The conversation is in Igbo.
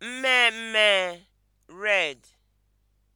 mme mme (red).